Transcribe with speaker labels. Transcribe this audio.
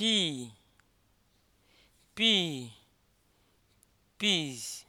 Speaker 1: pea pea peas